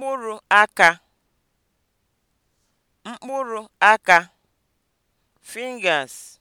mkpụrụ aka mkpụrụ (fingers)